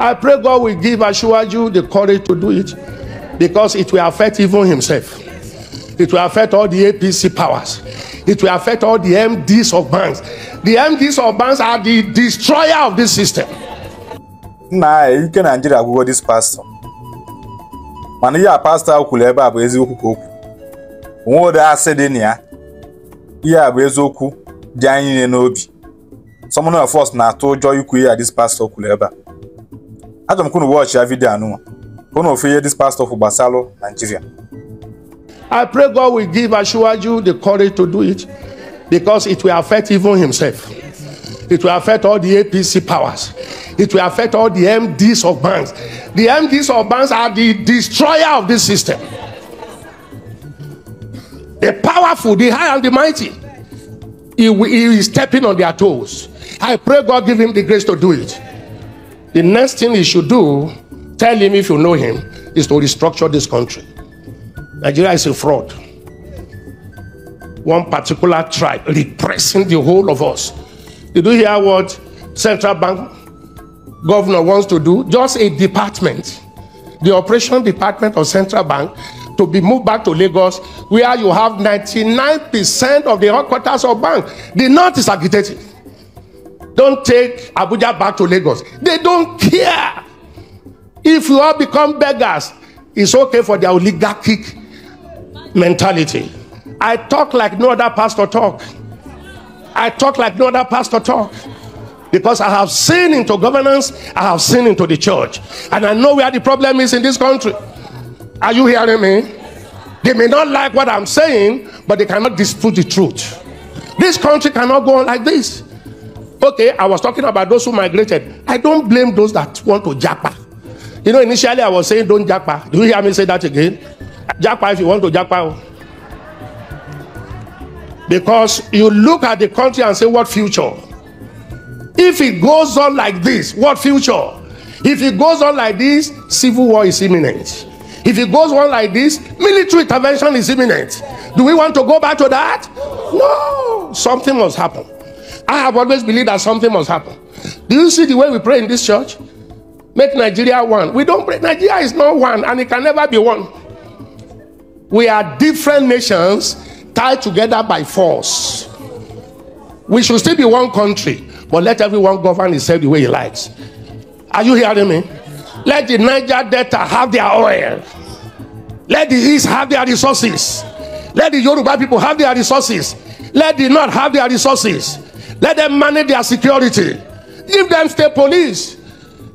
I pray God will give Ashwaju the courage to do it because it will affect even himself. It will affect all the APC powers. It will affect all the MDs of banks. The MDs of banks are the destroyer of this system. Nna anyị ike Nigeria agwụgo this pastor. Mana ihe a pastor ahụ kwuru ebe a bụ eziokwu ka o kwuru. Onwe ụdị asị dị na ya. Ihe a bụ eziokwu dị anyị niile n'obi. Someone of us na-atụ ụjọ this pastor kwuru Hata mkunu watch ya video anu. Kono ofeye this pastor for Basalo, Nigeria. I pray God will give Ashwaju the courage to do it because it will affect even himself. It will affect all the APC powers. It will affect all the MDs of banks. The MDs of banks are the destroyer of this system. The powerful, the high and the mighty, he, he is stepping on their toes. I pray God give him the grace to do it. The next thing he should do, tell him if you know him, is to restructure this country. Nigeria is a fraud. One particular tribe repressing the whole of us. Did you hear what central bank governor wants to do? Just a department, the operation department of central bank, to be moved back to Lagos, where you have 99% of the headquarters of bank. The north is agitated. Don't take Abuja back to Lagos. They don't care. If you all become beggars, it's okay for their oligarchic mentality. I talk like no other pastor talk. I talk like no other pastor talk. Because I have seen into governance, I have seen into the church. And I know where the problem is in this country. Are you hearing me? They may not like what I'm saying, but they cannot dispute the truth. This country cannot go on like this. Okay, I was talking about those who migrated. I don't blame those that want to japa. You know, initially I was saying don't japa. Do you hear me say that again? Japa if you want to japa. Because you look at the country and say, what future? If it goes on like this, what future? If it goes on like this, civil war is imminent. If it goes on like this, military intervention is imminent. Do we want to go back to that? No, something must happen. I have always believed that something must happen. Do you see the way we pray in this church? Make Nigeria one. We don't pray. Nigeria is not one and it can never be one. We are different nations tied together by force. We should still be one country, but let everyone govern itself the way he likes. Are you hearing me? Let the Niger Delta have their oil. Let the East have their resources. Let the Yoruba people have their resources. Let the North have their resources. Let them manage their security. Give them state police.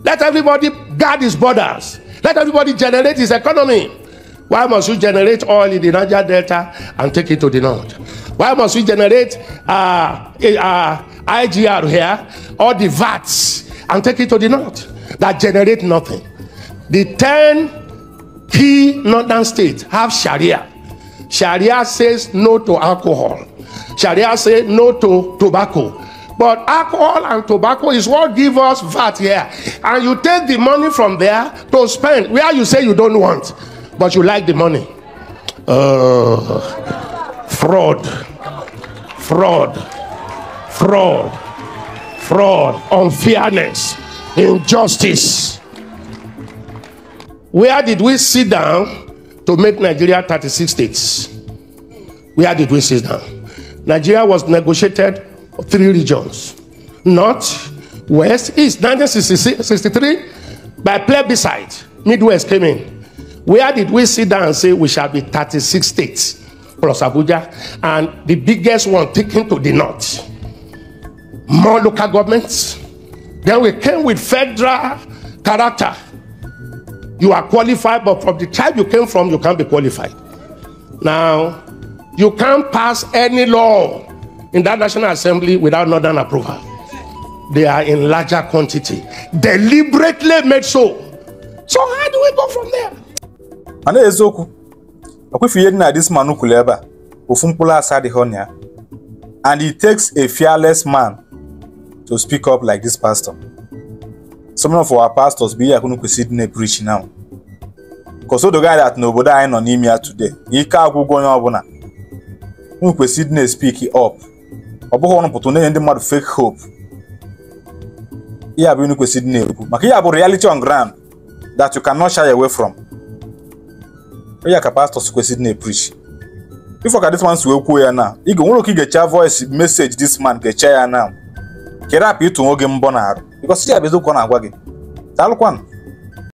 Let everybody guard his borders. Let everybody generate his economy. Why must we generate oil in the Niger Delta and take it to the north? Why must we generate uh, uh, IGR here or the VATs and take it to the north that generate nothing? The 10 key northern states have Sharia. Sharia says no to alcohol. Sharia say no to tobacco. But alcohol and tobacco is what give us VAT here. And you take the money from there to spend where you say you don't want, but you like the money. Uh, fraud, fraud, fraud, fraud, unfairness, injustice. Where did we sit down to make Nigeria 36 states? Where did we sit down? Nigeria was negotiated three regions North, West, East, 1963 by plebiscite. Midwest came in. Where did we sit down and say we shall be 36 states plus Abuja and the biggest one taken to the North? More local governments. Then we came with federal character. You are qualified, but from the tribe you came from, you can't be qualified. Now, You can't pass any law in that National Assembly without Northern approval. They are in larger quantity, deliberately made so. So how do we go from there? A na eziokwu akwefu ihe dị na this man kwuru ebe a ofu mkpụrụ asa adịghị ọnya ya and it takes a fearless man to speak up like this pastor. Some of our pastors bụ ihe akụnụ kwesịrị dị na-epreach now. the guy that nobody anyị nọ him ya today ike agwụgwọ onye ọbụla unu kwesịrị ịdị na-espik up ọ bụghị ọnụ pụtụ na-enye ndị mmadụ fake hope ya bụ unu kwesịrị ịdị na-ekwu maka ya bụ reality on ground that you cannot shy away from ya ka pastors kwesịrị ịdị na-epreach if ka this man si wee kwuo ya na ị ga nwere oke gecha voice message dis man gecha ya na kerapụ ịtụ nwoge mbọ na arụ because ya bụ eziokwu ọ na-agwa gị daalụkwanụ